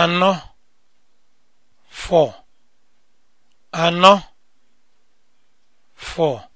anọ fọ anọ fọ